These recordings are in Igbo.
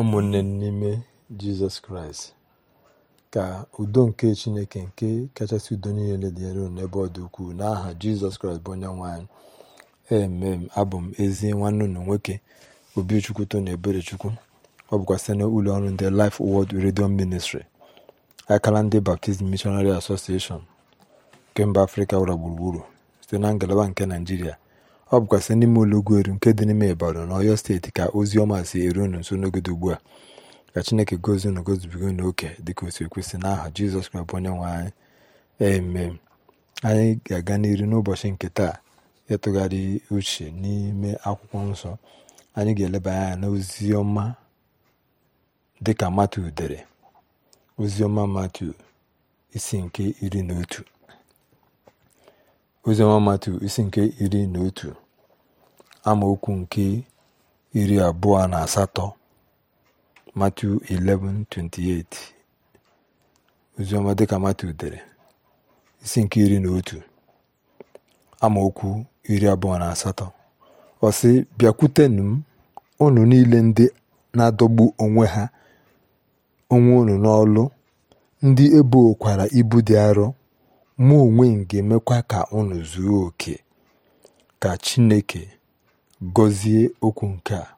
ụmụnne n'ime jizọs kraịst ka udo nke chineke nke kachasị udo niile dị elu n'ebe ọ dị ukwuu n'aha jizọs kraịst bụ onye nwanyị emem abụ m ezi nwanne unu nwoke obichukwu ebere eberechukwu ọ bụkwa site n'ụlọ ọrụ ndị Life Word redio Ministry akala ndị Baptist mishonari Association nke mba afrịka ụra gburugburu site na ngalaba nke naijiria Ọ bụkwazị n'ime Ụlọgweru nke dị n'ime Ịbàdàn na Ọyọ Steeti ka oziọma si eru unu nso n'oge ugbu a. Ka Chineke gọzie unu gọzibiga unu oke dịka o si ekwesị n'aha Jizọs Kraịst bụ Onyenwe anyị. eme Anyị ga-aga n'iru n'ụbọchị nke taa ịtụgharị uche n'ime akwụkwọ nsọ. Anyị ga-eleba anya na ọma dịka matu dere. Oziọma matu isi nke iri na otu. isi nke iri na otu amaokwu nke iri abụọ na asatọ Matthew 11:28 oziọma dịka Matthew dere isi nke iri na otu amaokwu iri abụọ na asatọ ọsị bịakwute bịakwutenụ m unu niile ndị na-adọgbu onwe ha onwe unu n'ọlụ ndị ebokwara ibu dị arọ mụ onwe m ga-emekwa ka unu zuo oke ka Chineke gọzie okwu nke a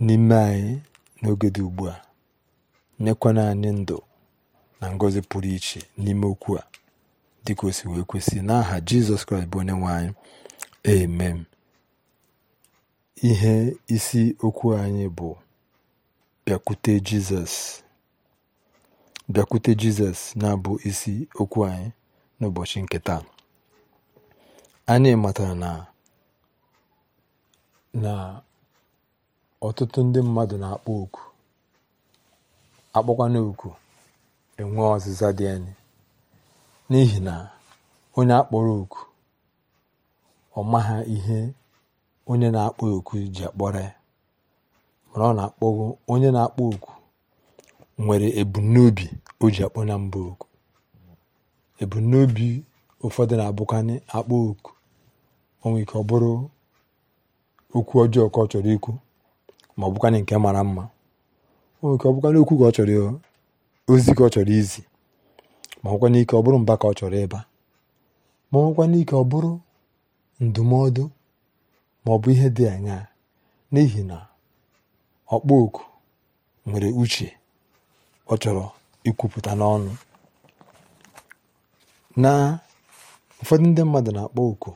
n'ime anyị n'oge dị ugbu a nyekwana anyị ndụ na ngọzi pụrụ iche n'ime okwu a dịka o wee kwesị n'aha jizọs kraịst bụ onye nwe anyị amen ihe isi okwu anyị bụ bịakwute jizọs bịakwute jizọs na-abụ isi okwu anyị n'ụbọchị nke taa anyị matara na Na ọtụtụ ndị mmadụ na-akpọ oku akpọkwana oku enwee ọzịza dị anyị n'ihi na onye akpọrọ oku ọ maha ihe onye na-akpọ oku ji akpọrọ ya mana ọ na-akpọgo onye na-akpọ oku nwere ebumnobi o ji akpọ na mba oku ebumnobi ụfọdụ na-abụkwanị akpọ oku, o ike ọ bụrụ okwu ọjọọ ka ọ chọrọ ikwu ma ọ bụkwanye nke mara mma oke ọ bụkwanye okwu ka ọ chọrọ ozi ka ọ chọrọ izi ma ọ ike ọ bụrụ mba ka ọ chọrọ ịba ma ọ ike ọ bụrụ ndụmọdụ ma ọ bụ ihe dị anya n'ihi na ọkpọ oku nwere uche ọ chọrọ ikwupụta n'ọnụ na ụfọdụ ndị mmadụ na-akpọ oku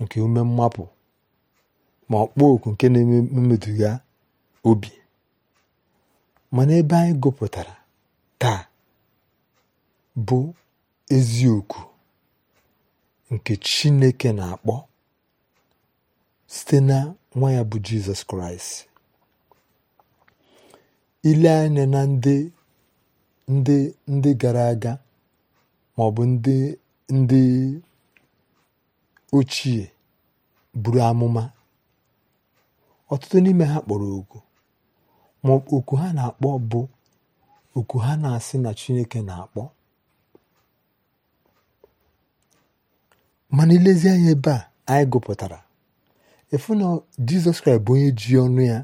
nke ume mmapụ ma ọkpọ oku nke na-eme mmeduga obi mana ebe anyị gụpụtara taa bụ eziokwu nke chineke na-akpọ site na nwa ya bụ jizọs kraịst ile anya na ndị ndị ndị gara aga ma ọ bụ ndị ndị ochie buru amụma ọtụtụ n'ime ha kpọrọ oku ma oku ha na-akpọ bụ oku ha na-asị na Chineke na-akpọ mana ilezi anya ebe a anyị gụpụtara efu na Jizọs Kraịst bụ onye ji ọnụ ya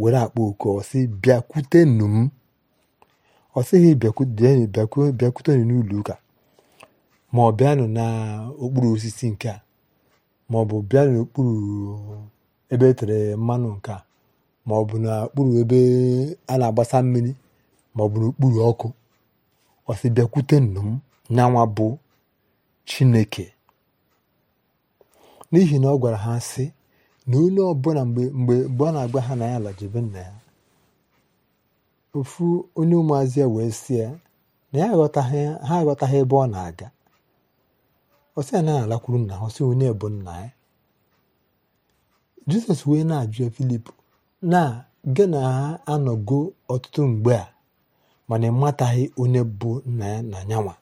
were akpọ oku ọsị bịakwute m ọsịghị bịakwute nnụnụ n'ụlọ ụka ma ọ n'okpuru osisi nke a ma ọ bụ bịanụ n'okpuru ebe e tere mmanụ nke a maọbụ n'okpuru ebe a na-agbasa mmiri maọbụ n'okpuru ọkụ ọsị bịakwute nnu m nyanwa bụ chineke n'ihi na ọ gwara ha sị na onye ọbụla mgbe mgbe ọ na agba ha na ya lajebe nna ya ofu onye ụmụazị ya wee sị ya na ya aghọtaghị ha aghọtaghị ebe ọ na-aga ọ sị ya na ya alakwuru nna ha ọ sị onye bụ nna ya jizọs wee na-ajụ filip na gị na ha anọgo ọtụtụ mgbe a mana ịmataghị onye bụ nna ya na nyanwa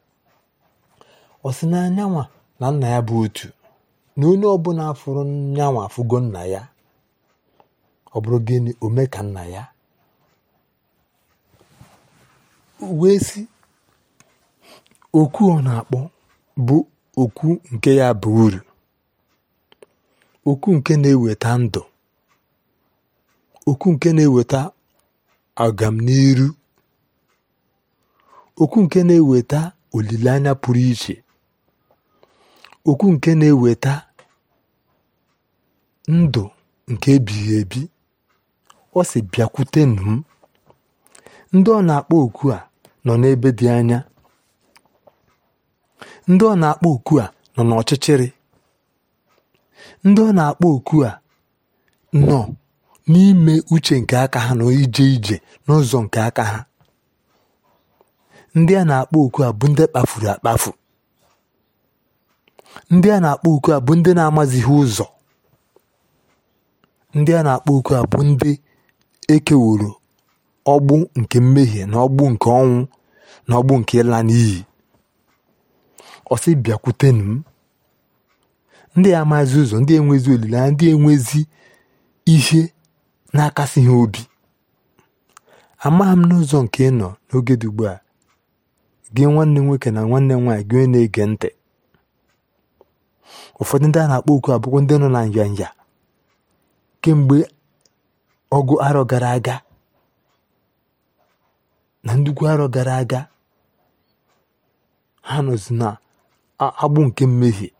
ọ sị na nyanwa na nna ya bụ otu na onye ọbụla fụrụ nyanwa afụgo nna ya ọ bụrụ gịnị ome ka nna ya wee si okwu ọ na-akpọ bụ okwu nke ya bụ uru okwu nke na-eweta ndụ okwu nke na-eweta agamniru okwu nke na-eweta olileanya pụrụ iche okwu nke na-eweta ndụ nke ebighị ebi ọ sị bịakwute m ndị ọ na-akpọ oku a nọ n'ebe dị anya ndị ọ na-akpọ oku a nọ n'ọchịchịrị ndị ọ na-akpọ oku a nọ n'ime uche nke aka ha na ije ije n'ụzọ nke aka ha ndị a na-akpọ oku a bụ ndị kpafuru akpafu ndị a na-akpọ oku a bụ ndị na-amazighị ụzọ ndị a na-akpọ oku a bụ ndị ekeworo ọgbụ nke mmehie na ọgbụ nke ọnwụ na ọgbụ nke ịla n'iyi ọsị bịakwute m ndị amazi ụzọ ndị enwezi olileanya ndị enwezi ihe na-akasị ha obi amaghị m n'ụzọ nke ị nọ n'oge dugbu a gị nwanne nwoke na nwanne m nwaanyị gị na-ege ntị ụfọdụ ndị a na-akpọ oku abụkwọ ndị nọ na nyanya kemgbe ọgụ arọ gara aga na ndukwu arọ gara aga ha nọzi na agbụ nke mmehie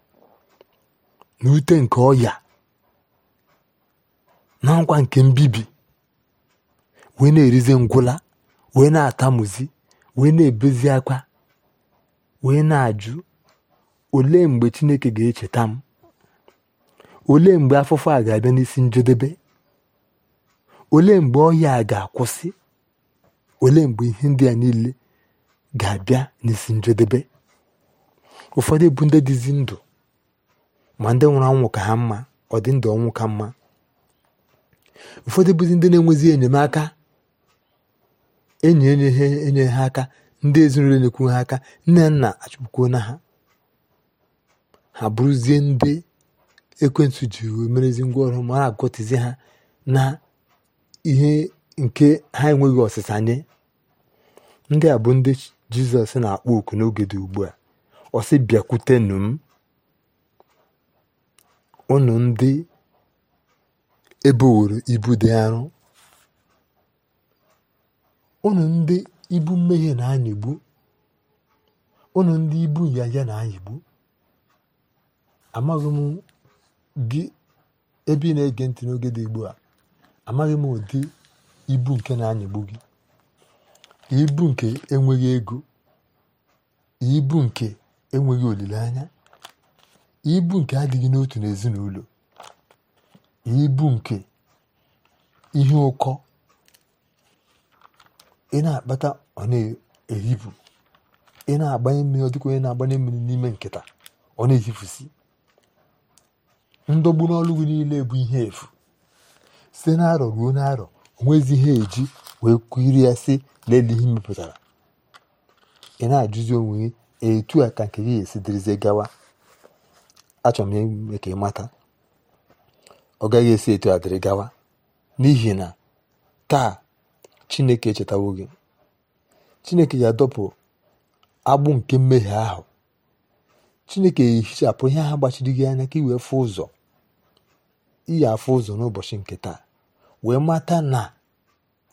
N'ute ute nke ọya na nkwa nke mbibi wee na erize ngwụla wee na-atamuzi wee na-ebezi akwa wee na-ajụ olee mgbe chineke ga-echeta m olee mgbe afụfụ a ga-abịa n'isi njedebe olee mgbe ọhịa a ga-akwụsị olee mgbe ihe ndị niile ga-abịa n'isi njedebe ụfọdụ bụ ndị dịzi ndụ ma ndị nwụrụ anwụ ka ha mma ọ dị ndụ ọnwụ ka mma ụfọdụ bụzi ndị na-enwezi enyemaka enyi enye enye ha aka ndị ezinụlọ na-ekwu ha aka nne nna achụpụkwuo na ha ha bụrụzie ndị ekwentị ji merezi ngwaọrụ ma mara agọtizi ha na ihe nke ha enweghị ọsịsa nye ndị a bụ ndị jizọs na-akpọ oku n'oge dị ugbu a ọsị bịakwute unu ndị eboworo ibu dị arọ unu ndị ibu mmehie na-anyịgbu unu ndị ibu ya na-anyịgbu amaghị m gị ebe ị na-ege ntị n'oge dị ugbu a amaghị m ụdị ibu nke na-anyịgbu gị ibu nke enweghị ego ibu nke enweghị olileanya ibu nke adịghị n'otu n'ezinụlọ ibu nke ihe ụkọ ị na-akpata ọ na-ehipu ị na-agbanye mmiri ọ onye na-agbanye mmiri n'ime nkịta ọ na-ehifusi ndọgbu n'ọlụ gị niile bụ ihe efu site na ruo na-arọ onwezi ihe eji wee kiri ya si n'elu ihe mepụtara ị na-ajụzi onwe gị etu a ka nke gị esi dịrịzie gawa achọrọ m ime ka ị mata ọ gaghị esi etu a dịrị gawa n'ihi na taa chineke echetawo gị chineke ga-adọpụ agbụ nke mmehie ahụ chineke ehichapụ ihe ahụ gbachiri gị anya ka ị wee ụzọ iyi afụ ụzọ n'ụbọchị nke taa wee mata na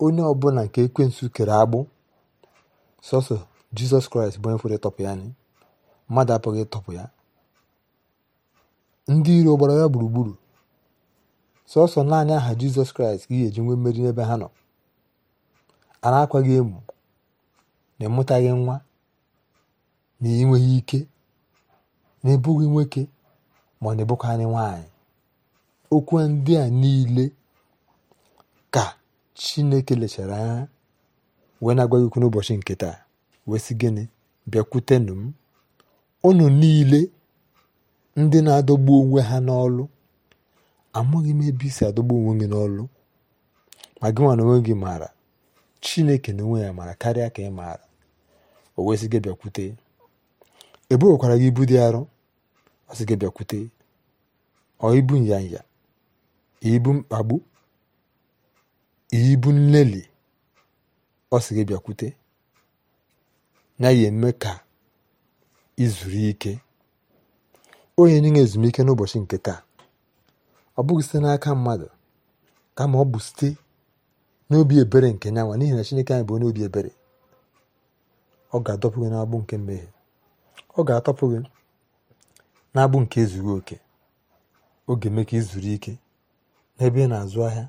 onye ọbụla nke ekwensu kere agbụ sọsọ jizọs kraịst bụ onye pụrụ ịtọpụ ya anyị mmadụ apụghị ịtọpụ ya ndị iro gbara ya gburugburu sọsọ naanị aha jizọs kraịst ka ga-eji nwee mmeri n'ebe ha nọ a na-akwa gị emu na ịmụtaghị nwa na enweghị ike na ebughị nwoke ma ọ na-ebụkwa nwanyị. okwu ndị a niile ka chineke lechara anya wee na-agwa okwu n'ụbọchị nke taa wee sị gịnị bịakwutenụ m unu niile ndị na-adọgbu onwe ha n'ọlụ amaghị m ebe isi adọgbu onwe gị n'ọlụ ma gị nwa na onwe gị maara chineke na onwe ya maara karịa ka ị maara o wee sị gị bịakwute ebuwekwara gị ibu dị arọ ọ sị gị bịakwute ọ ibu nyanya ibu mkpagbu ibu nlelị ọ sị gị bịakwute na ya eme ka izuru ike onye nye ezumike n'ụbọchị nke taa ọ bụghị site n'aka mmadụ kama ọ bụ site n'obi ebere nke nyanwa n'ihi na Chineke anyị bụ onye obi ebere ọ ga-adọpụ gị n'agbụ nke mmehie ọ ga-atọpụ gị n'agbụ nke ezughị oke oge mee ka ịzụrụ ike n'ebe ị na-azụ ahịa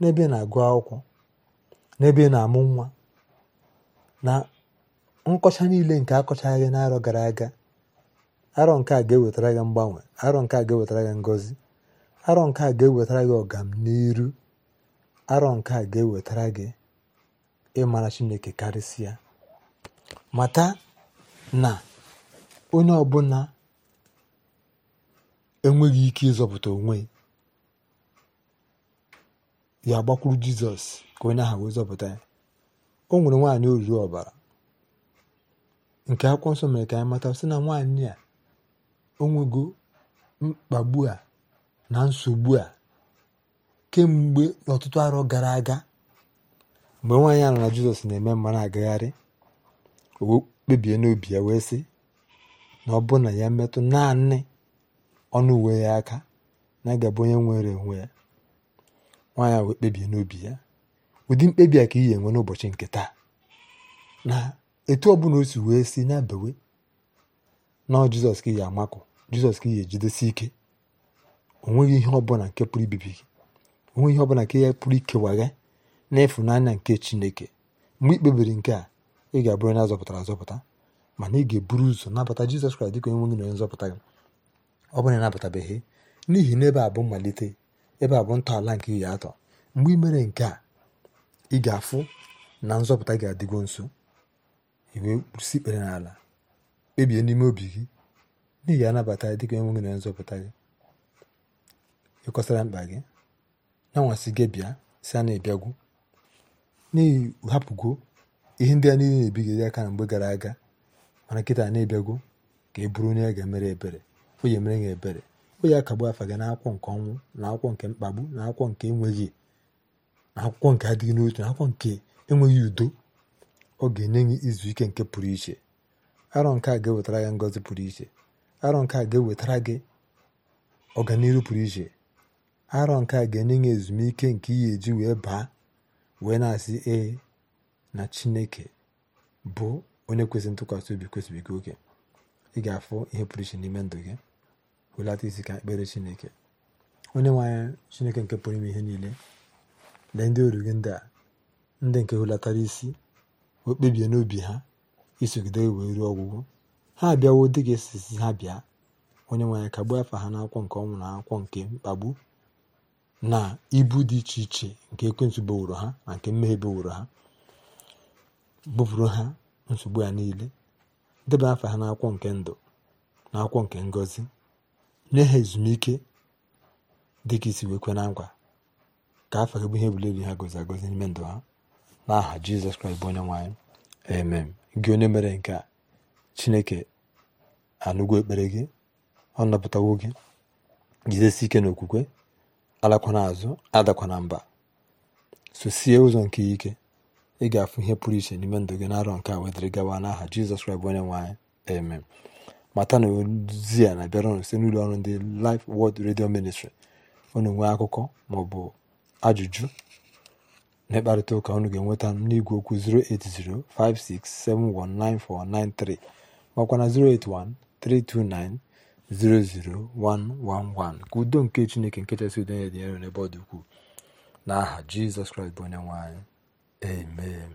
n'ebe ị na-agụ akwụkwọ n'ebe ị na-amụ nwa na nkọcha niile nke akọchaghị n'arọ gara aga arọ nke a ga-ewetara gị mgbanwe arọ nke a ga-ewetara gị ngozi arọ nke a ga-ewetara gị ọganiru arọ nke a ga-ewetara gị ịmara chineke karịsịa mata na onye ọbụla enweghị ike ịzọpụta onwe ya gbakwuru jizọs ka onye ahụ wee zọpụta ya o nwere nwaanyị oruru ọbara nke akwụkwọ nsọ mere ka anyị mata sị na nwaanyị a onwego mkpagbu a na nsogbu a kemgbe ọtụtụ arọ gara aga mgbe nwaanyị a na jizọs na-eme mma agagharị o kpebie n'obi ya wee sị na ọ bụ na ya metụ naanị ọnụ uwe ya aka na-agabụ onye nwere onwe ya nwaanyị wee kpebie n'obi ya ụdị mkpebi a ka iyi enwe n'ụbọchị nke taa na etu ọ o si wee si na abawe nọọ jizọs ka ị amakụ jizọs ka ị ejidesi ike onweghị ihe ọbụla nke pụrụ ibibi gị onweghị ihe ọbụla nke ya pụrụ ikewagha n'ịfụnanya nke chineke mgbe ị kpebiri nke a ị ga-abụrụ onye azọpụtara azọpụta mana ị ga-eburu ụzọ nabata jizọs kraịst dịka onye nwe na onye nzọpụta gị ọ bụrụ na n'ihi na ebe a bụ mmalite ebe a bụ ntọala nke ihe atọ mgbe ị mere nke a ị ga-afụ na nzọpụta ga-adịgo nso iwe kwụsị ikpere n'ala kpebie n'ime obi gị n'ihi ị anabata dị ka enweghị na nzọpụta gị ịkọsara mkpa gị na anwasị gị bịa si a na-ebiagwu n'ihi hapụgo ihe ndị a niile na-ebi gị aka na mgbe gara aga mana nkịta na-ebiagwo ka e bụrụ onye a ga-emere ebere onye mere emere gị ebere o akagbu afa gị n'akwụkwọ nke ọnwụ na akwụkwọ nke mkpagbu na akwụkwọ nke enweghị na akwụkwọ nke adịghị n'otu na akwụkwọ nke enweghị udo ọ ga-enye gị izu ike nke pụrụ iche arọ nke a ga-ewetara ya ngọzi pụrụ iche arọ nke a ga-ewetara gị ọganihu pụrụ iche arọ nke a ga-enye ya ezumike nke iyi eji wee baa wee na-asị ee na chineke bụ onye kwesịrị ntụkwasị obi kwesịrị gị oke ị ga-afụ ihe pụrụ iche n'ime ndụ gị hụlata isi ka ekpere chineke onye nwe chineke nke pụrụ ime ihe niile lee ndị oru gị ndị a ndị nke hụlatara isi o kpebie n'obi ha isogide wee ruo ọgwụgwụ ha abịawo dị ka esisi ha bịa onye nwe ka gbuo afa ha n'akwọ nke ọnwụ na akwụkwọ nke mkpagbu na ibu dị iche iche nke ekwentị beworo ha na nke mmehie beworo ha bụbụrụ ha nsogbu ya niile deba afa ha n'akwọ nke ndụ na akwụkwọ nke nye ha ezumike dị ka isi wee kwe na nkwa ka afa gị bụ ihe ebule ha gozi agozi n'ime ndụ ha n'aha Jizọs Kraịst bụ onye nwe emem gị onye mere nke a chineke anụgo ekpere gị ọ napụtawo gị jidesi ike n'okwukwe alakwana azụ na mba sosie ụzọ nke ike ị ga-afụ ihe pụrụ iche n'ime ndụ gị n'arọ nke a wedịrị gawa n'aha jizọs kraịst onye nwe anyị mata na ozi a na-abịara ọnụ site n'ụlọ ọrụ ndị lif wod redio Ministry unu nwee akụkọ maọbụ ajụjụ na ịkparịta ụka ga-enweta m n'igwe okwu 08056719493 makwa na 08132900111 ka udo nke Chineke nke chasị udo nye dị n'ebe ọ dị ukwuu n'aha Jizọs Kraịst bụ onye nwanyị. amen